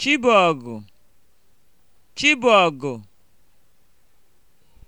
Chibọgụ Chibọgụ